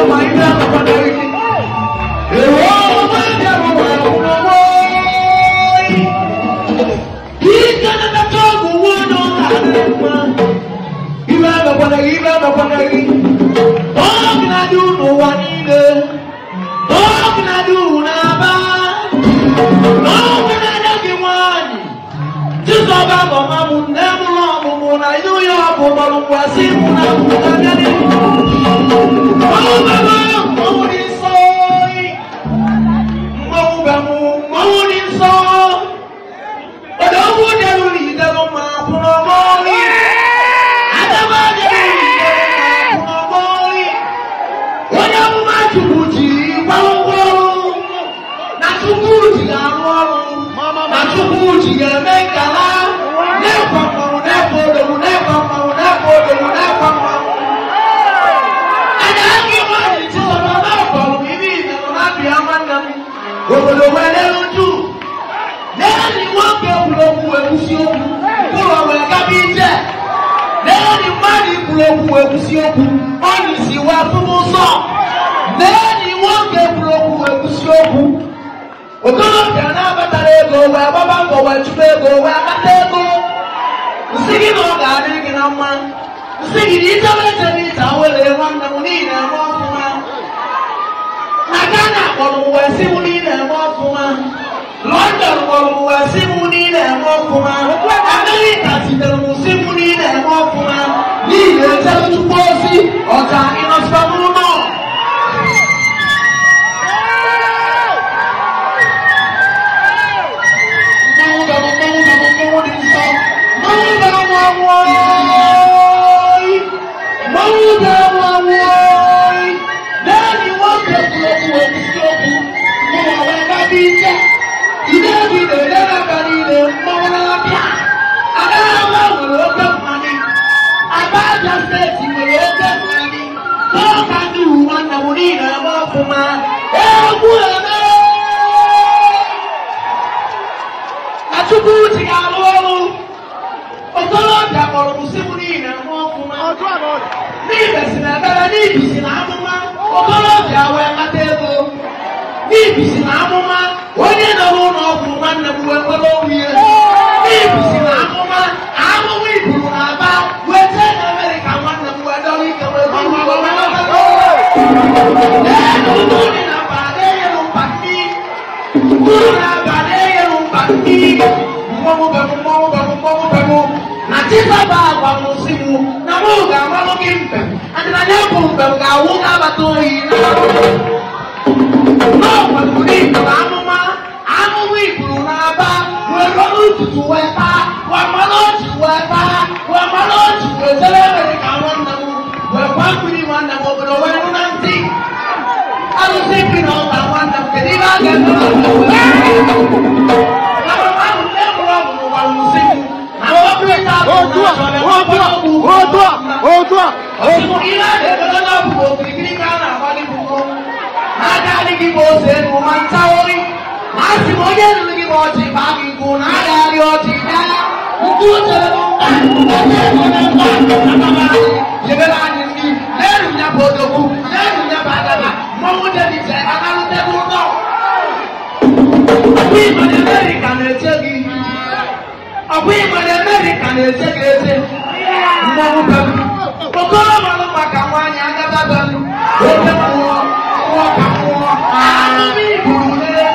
Why not? Chukwudi gwawogwo na Chukwudi ga-arụ ọrụ na Chukwudi ga-eme nkala na-ekwe mmanwụ na-ekwe odogwu na-ekwe mmanwụ na-ekwe odogwu na-ekwe mmanwụ. Ada aka iwe anyị chịsọrọ n'afọ ibi ịdọrọ na abịa nwanne m obodo wee n'elu ju n'elu nwoke kwuru okwu wee kwụsị okwu ụlọ wee gaba ije n'elu mmadụ kwuru okwu wee kwụsị okwu ọ na-esi wee tụrụ ụzọ. lee na iwu oge kwuru okwu wee kwụsị okwu okolobịa na-abatara ego wee gbaba mbọ wee chụba ego wee kpata ego nsị gị na ọ ga-adị gị na mma nsị gị na ichebe eche na ịcha were nwanne m n'ihi na eme ọfụma na Ghana kpọrọ m wee sị m na na-eme ọfụma London kpọrọ m wee sị m na ị na-eme ọfụma Amerịka zitere m sị m wọ́ọ́rì lẹ́yìn wọ́n gbẹ̀kú okùn òkú sí okùn mo wà wá lábí jẹ́ ìdẹ́bi mɔmu bɛ mu mɔmu bɛ mu mɔmu bɛ mu ati baba agbamu si mu na mu ga mɔmu ki mpɛ ati na nyɛ bu mpɛ ga awu ga abata oyi na na ɔgbɛmu ni ba anuma anuma iburu na aba wɛ lɔnu tutu wɛ pa wɛ mɔnu tutu wɛ pa. òkun ilé ẹ̀dẹ̀ tó lọ́nà bùbọ̀ kìrìkìrì kánà àbálẹ̀ bùbọ̀. Máa dá ní kí mo ṣe nù máa ń táwọ́rí. Máa sì mọ yé nù kí mo ti bá mi gùn náà dárí ọtí dá. Nkú ṣe ló ń bá ọjọ́ ìwọ náà ń bá ọjọ́ bàbá rẹ̀. bá ní ní lẹ́rù ní abàdàbà, mọ́mú débi ní Amẹ́ríkà na-eche gị. Ọ̀pọ̀ ìmọ̀ ní Amẹ́ríkà na-eche ọgọ́rùn-ún ọlọ́pàá kà wọ́n á ní agbábá nu ẹgbẹ́ wọn wọ́n kà wọ́n àánú mi ìbùrù lélẹ́.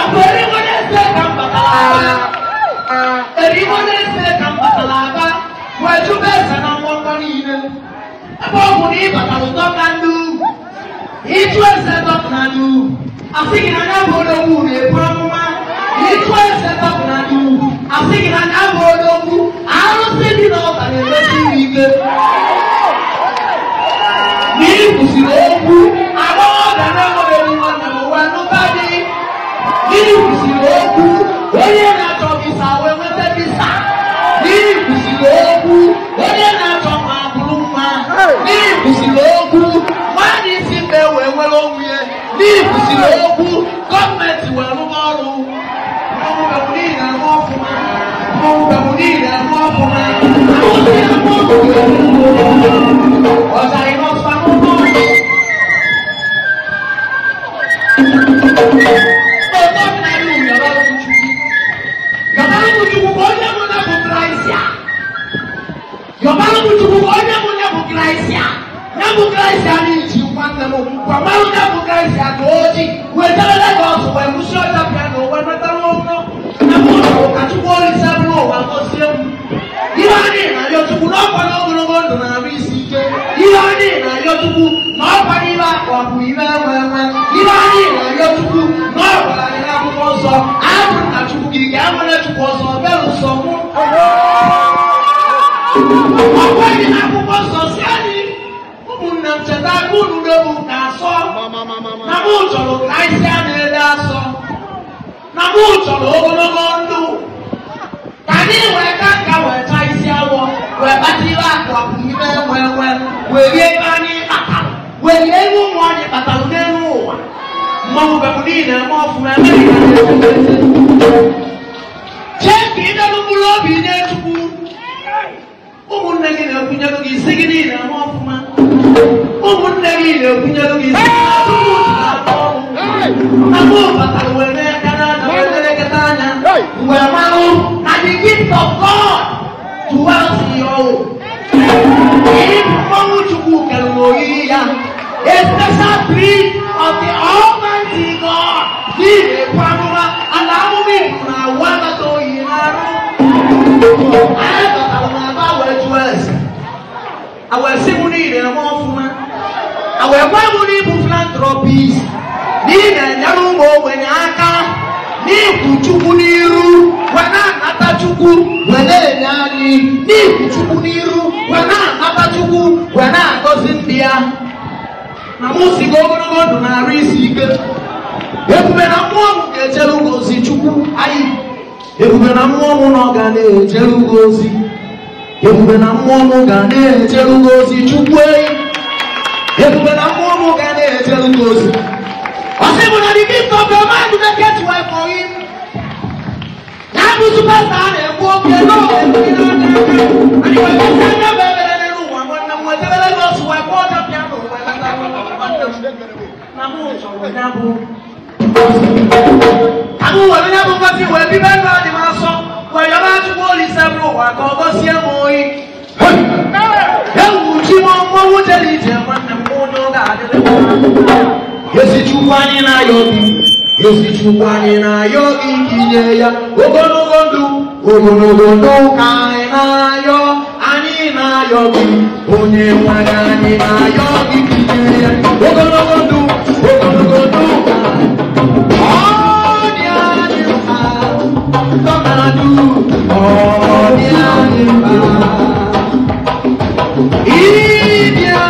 àpẹẹrẹ wọn ní ẹsẹ kan bàtàlà àbá èrí wọn ní ẹsẹ kan bàtàlà àbá Yeah. wàmà wúdà kú káyìsì àti òjì wẹ̀dá lẹ́gbà ọ̀sùn wẹ̀ mú sí ọjà piano wẹ̀ mẹ́ta wọn fún ẹ̀kọ́ ọ̀sùn àti wọ́ọ̀lì sẹ́fún ọ̀wà kọ́ sí ẹ̀mú. Ihe ọ dị na Yotubu n'ọkwa na ogologo ndụ na-arụ isi ike. Ihe ọ dị na Yotubu n'ọkwa n'ibe akwa bụ ibe enwe enwe. Ihe ọ dị na Yotubu n'ọkwa na ihe akwụkwọ nsọ. Abụ na Chukwu gị ga-enwere Chukwu ọsọ bịa ụsọ mụ. Ọ bụghị na ebunu ɖe mu ta sɔ na mu tsɔlɔ kaisia ne ɖa sɔ na mu tsɔlɔ wogologo ŋdu tani wɛ kaka wɛ kaisia wɔ wɛ bati la kɔ akumi bɛ wɛ wɛ wɛ yɛ ba ni pata wɛ yɛ nu mɔ ni pata lu ne nu wa mɔ mu bɛ mu ni yina mɔ fu mɛ mɛ yina ne ko mɛ se tse k'i ɖe nukulo bi ne tugu umu negi ne kunyago k'i segin ni yina mɔ fu mɛ. I will ne kunya ki of god to us yo ini mau cukup kalau the almighty to yinaru ayatata na ba wee gwa bụrụ ịbụ filantropis n'ihi na-enyere ụmụ ogbenye aka n'ikwu chukwu n'iru wee na-anata chukwu wee na-enye anyị n'ikwu chukwu n'iru wee na-anata chukwu wee na-agọzi ndị ya na mụ sigo ogologo ndụ na-arụ isi ike ebube na mmụọ m ga-ejere ugo chukwu anyị ebube na mmụọ m na ọ ga na-ejere ebube na mmụọ m ga na-ejere chukwu ebubere ọmụmụ ga na-eje ụlọ ozi ọ sị bụ na the gift of your mind na get well for him na abụ supasta a na-ekwu oke n'ụwa ndị na-aka anyị nwere ike anya bụ ebere n'elu ụwa nwanne m wetebere gị otu wee kpọọ ọjọọ pịa n'ụwa na mụ chọrọ ya bụ agụ were ya bụ ngozi wee bibe ndụ adị m asọ were ya bụ olise bụrụ ụwa ka ọ gọzie m oyi wudeli je nwanne m onye ọ ga-adịrị esichukwu anyị na-ayọ gị esichukwu anyị na-ayọ gị inye ya ogologo ndụ ogologo ndụ ka anyị na-ayọ anyị na-ayọ gị onye nwere anyị na-ayọ gị inye ya ogologo ndụ ogologo ndụ ka ọ dị anyị mkpa ọ dị anyị mkpa India.